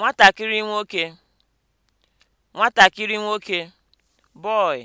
nwatakịrị nwoke nwatakịrị nwoke (boy)